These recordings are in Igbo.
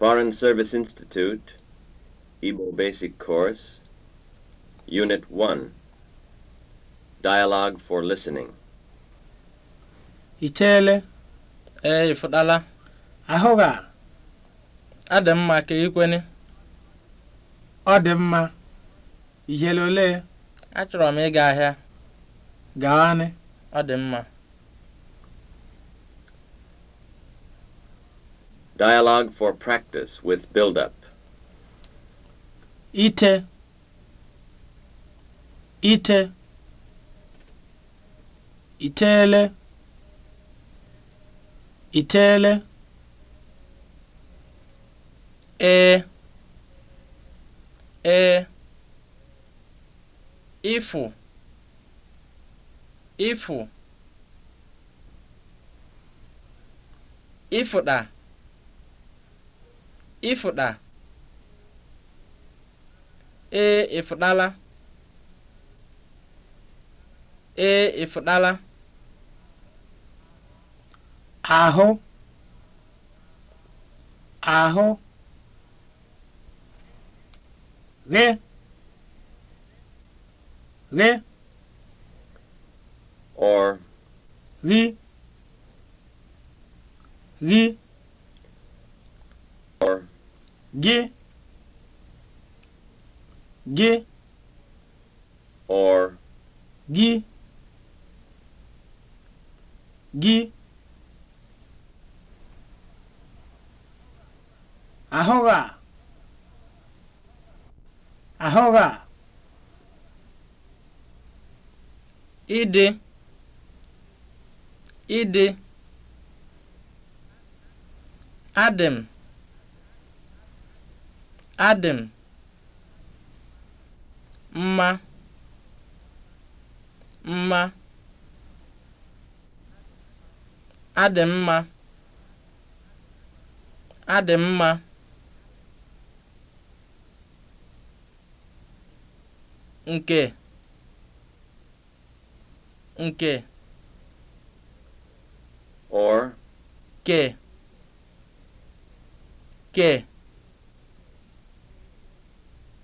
Foreign Service Institute, Igbo Basic Course, Unit 1, Dialogue for Listening. Icheele, ee ifudala ahụghị a, mma ka ikwene. Ọ dị mma, ihele ole? Achọrọ m ịga ahịa. Gaanị. Ọ dị mma. Dialogue for practice with build-up. Ite. Ite. Itele. Itele. E. E. Ifu. Ifu. Ifu da. ịfụda ee ịfụdala ee ahụ ahụ ghe ghe or ghi gị gị or gị gị ahụghị a ahụghị a ịdị ịdị adị Adị mma mma (adị mma) adị mma (nke) (nke) or (ke) (ke)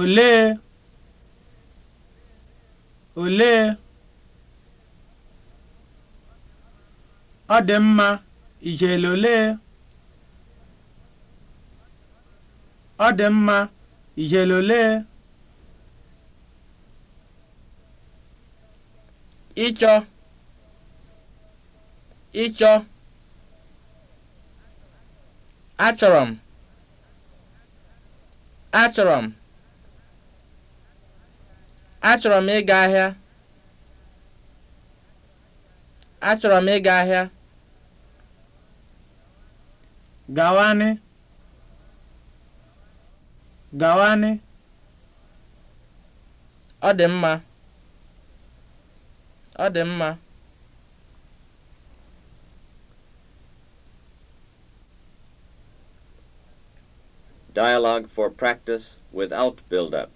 olee olee ọ dị mma ijele olee ọ dị mma ijele olee ịchọ ịchọ achọrọ m achọrọ m Achọrọ m ịga ahịa. Achọrọ m ịga ahịa. Gawanị. Gawanị. Ọ dị mma. Ọ dị mma. Dialogue for practice without build-up.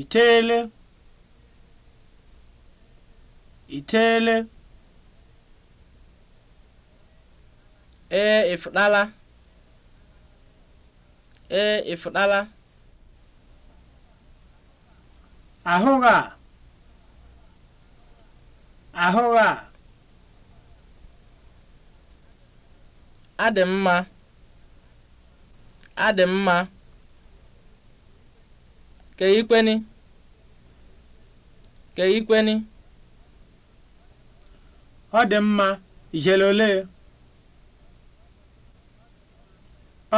itele ee ịfụdala ee ịfụdala a a adị adị mma keikweni keikweni ọ dị mma ijele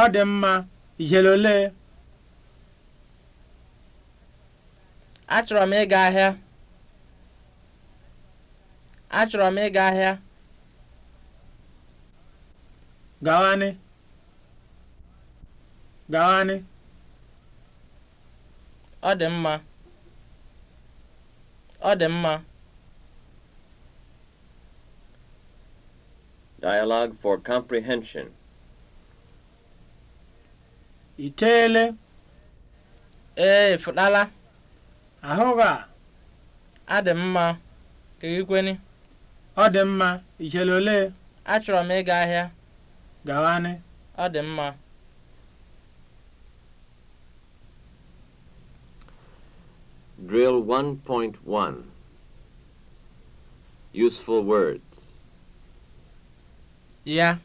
ọ dị mma ijele achọrọ m ịga ahịa achọrọ m ịga ahịa gawanị Ọ dị mma, ọ dị mma. Dialogue for comprehension. Iteele. Ee, fụtala. Ahụ ga. Ọ dị mma. Kegikweni. Ọ dị mma. ole? Achọrọ m ịga ahịa. Gawanị. Ọ dị mma. Drill 1.1 Useful words. Ya.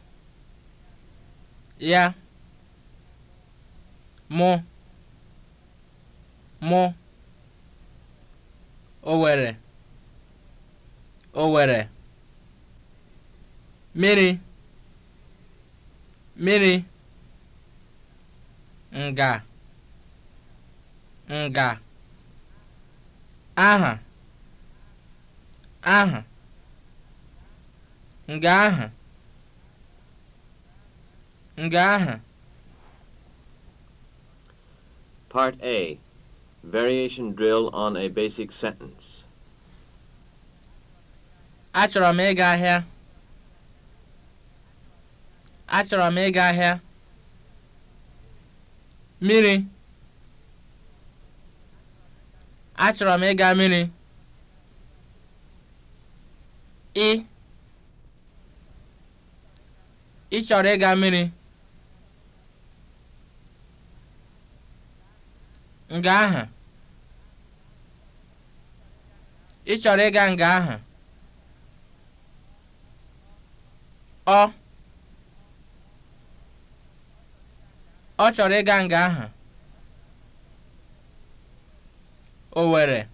Ya. Mụ. Mụ. Owere. Owere. miri Mmiri. Nga. Nga. aha aha nga aha nga aha Part A Variation drill on a basic sentence. Achọrọ m ịga ahịa. Achọrọ m ịga ahịa. Mmiri. Achọrọ m ịga mmiri. Ị Ị chọrọ ịga mmiri? Nga ahụ. Ị chọrọ ịga nga ahụ? Ọ Ọ chọrọ ịga nga ahụ. Owere.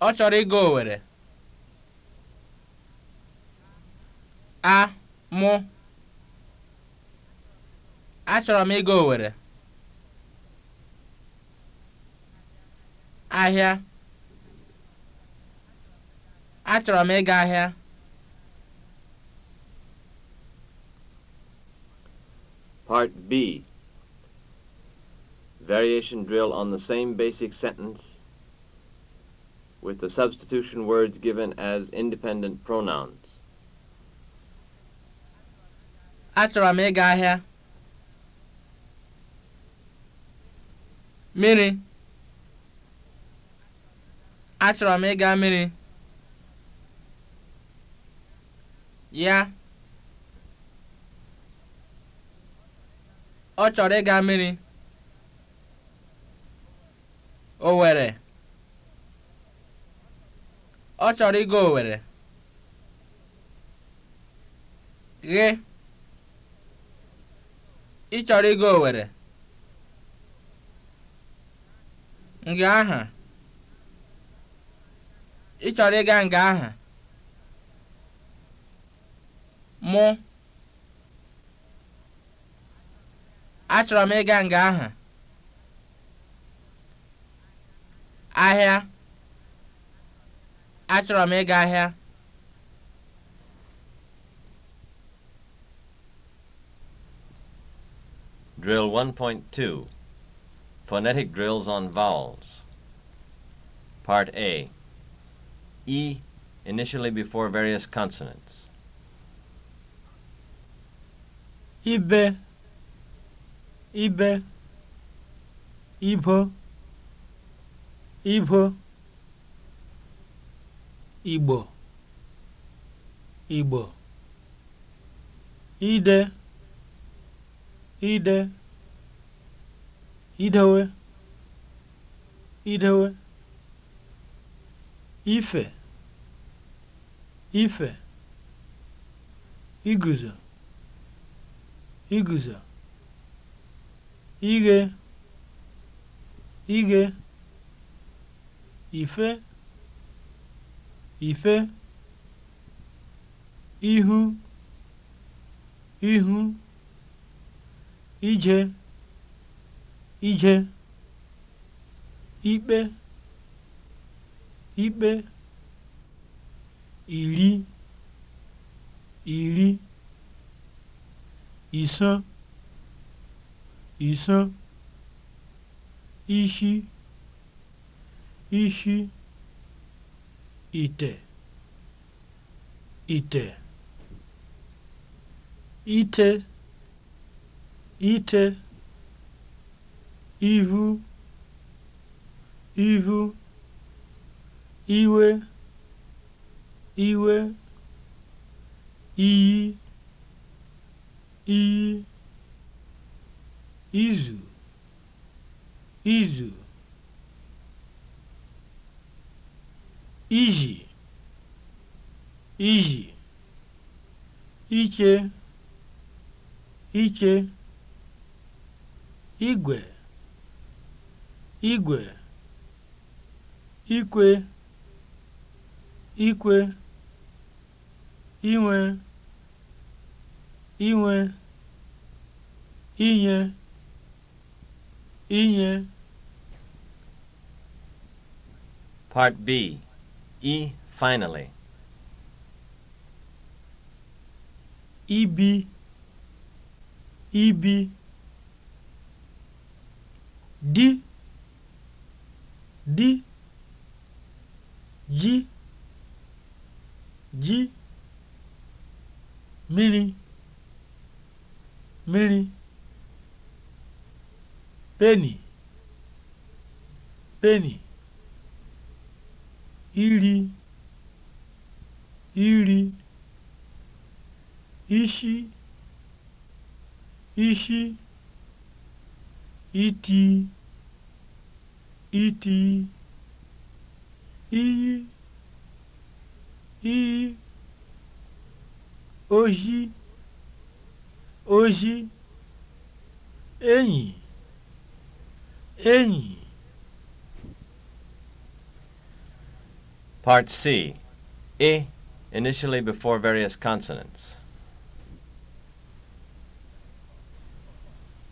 Ọ chọrọ ịga Owere. A mụ. Achọrọ m ịga Owere. Ahịa. Achọrọ m ịga ahịa. Part B variation drill on the same basic sentence with the substitution words given as independent pronouns. Achọrọ m ịga ahịa. Mmiri. Achọrọ m ịga mmiri. Ya. Ọ chọrọ ịga mmiri. Owere ọ chọrọ ịga Owere ghe ị chọrọ ịga Owere nga aha ị chọrọ ịga nga aha mụ achọrọ m ịga nga aha ahịa achọrọ m ịga ahịa Drill 1.2 Phonetic drills on vowels Part A E initially before various consonants Ibe Ibe Ibo ibo igbo igbo ide ide idewe idewe ife ife iguzo iguzo ighe ighe ife ife ihu ihu ije ije ikpe ikpe iri iri iso iso ishi ishi ite ite ite ite ivu ivu iwe iwe iyi iyi izu izu iji iji iche iche igwe igwe ikwe ikwe inwe inwe inye inye Part B i e, finally. Ibi e, ibi e, di di ji ji mmiri mmiri peni peni iri iri ishi ishi iti iti iyi iyi oji oji enyi enyi Part C. a e, initially before various consonants.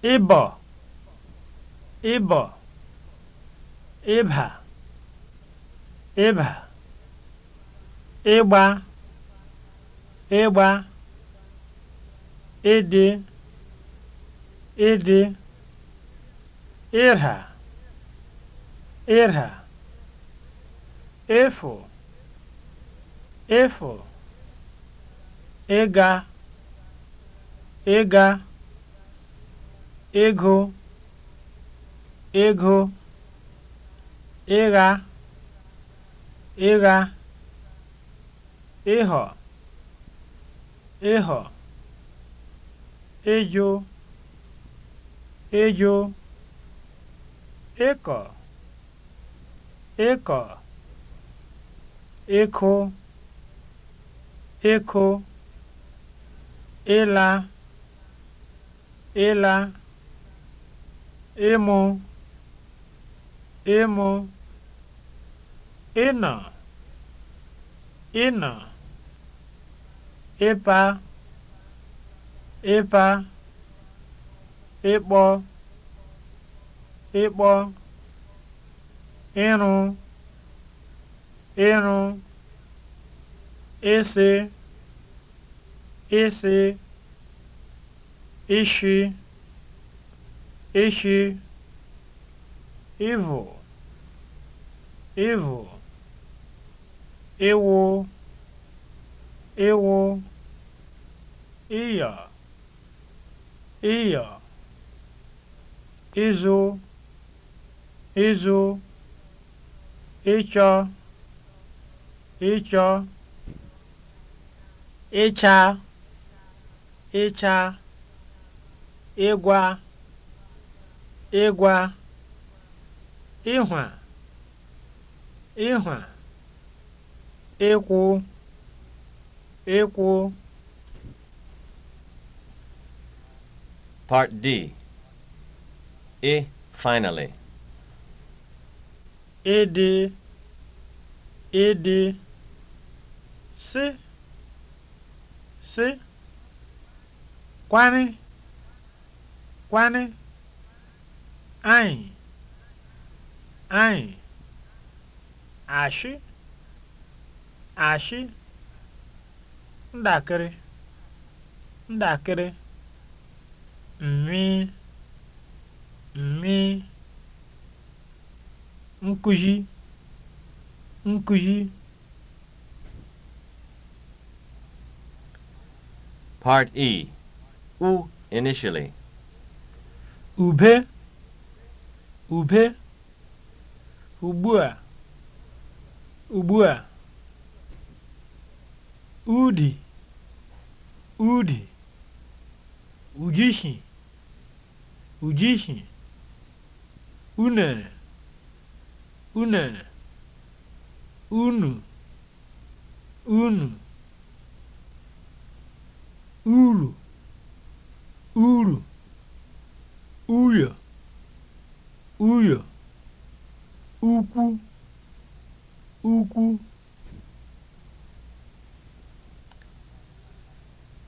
Ibo, Ibo, Ibha, Ibha, Igba, Igba, Idi, Idi, Irha, Irha. efu efu ịga ịga ego, ego, ịgha ịgha ịghọ ịghọ ịjụ ịjụ ịkọ ịkọ ịkụ ịkụ ịla ịla ịmụ ịmụ ịnọ ịnọ ịpa ịpa ịkpọ ịkpọ ịrụ ịrụ ịsị ịsị ishi ishi ịvụ ịvụ iwu, iwu, iya, iya, izu, izu, ịchọ ịchọ ịcha ịcha ịgwa ịgwa ịhwa ịhwa ịkwụ ịkwụ Part D E finally Ịdị Ịdị sị sị kwanị kwanị anyị anyị ashị ashị ndakịrị ndakịrị mmi mmi nkụzi nkụzi Part E. U initially. Ube. Ube. Ugbua. Ugbua. Udi. Udi. Ujishi. Ujishi. Unere. Unere. Unu. Unu. uru uru uyo uyo ukwu ukwu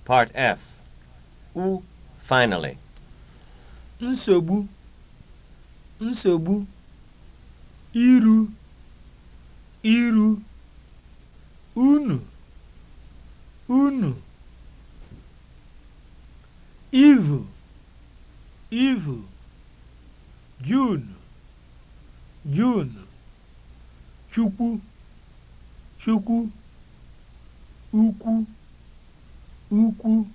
Part F. U finally. Nsogbu. Nsogbu. Iru. Iru. Unu. Unu. ivu ivu jun junu, chukwu chukwu ukwu ukwu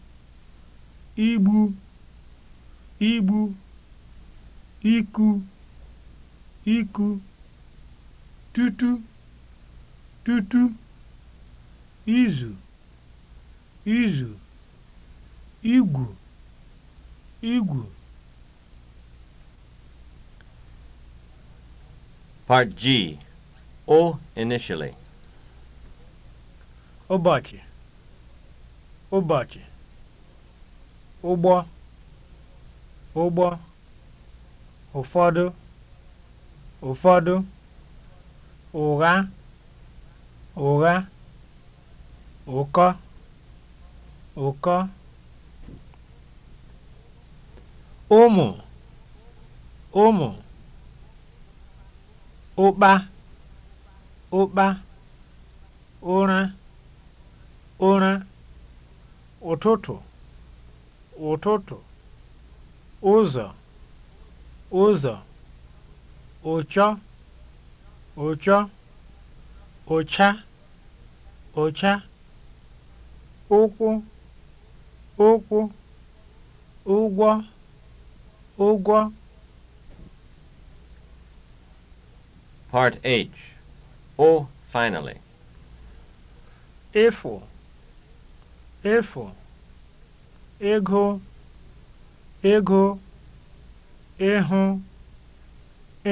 igbu igbu iku iku tutu tutu izu izu igwu igwu Part G O initially ụbọchị ụbọchị ụgbọ ụgbọ ụfọdụ ụfọdụ ụgha ụgha ụkọ ụkọ ụmụ ụmụ ụkpa ụkpa ụra ụra ụtụtụ ụtụtụ ụzọ ụzọ ụchọ ụchọ ụcha ụcha ụkwụ ụkwụ ụgwọ ụgwọ Part H. Oh, finally. efu efu ego ego ịhụ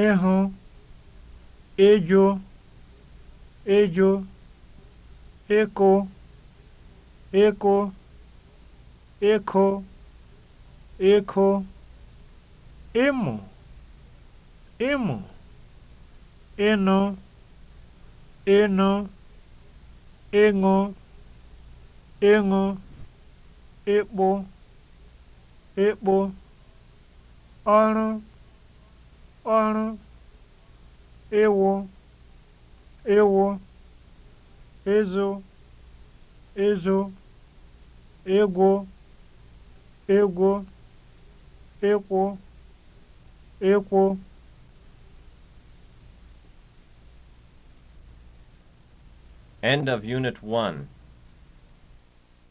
ịhụ ịjụ ịjụ ịkụ ịkụ ịkụ ịkụ ịmụ ịmụ ịnụ ịnụ ịṅụ ịṅụ ịkpụ ịkpụ ọrụ ọrụ ịwụ ịwụ ịzụ ịzụ ịgwụ ịgwụ ịkwụ ịkwụ End of Unit 1